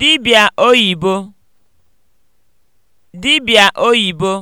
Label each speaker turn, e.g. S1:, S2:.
S1: dibịa oyibo dibịa oyibo